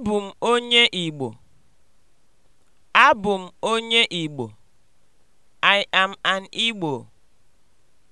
Abụ m onye Igbo. Abụ m onye Igbo. I am an Igbo.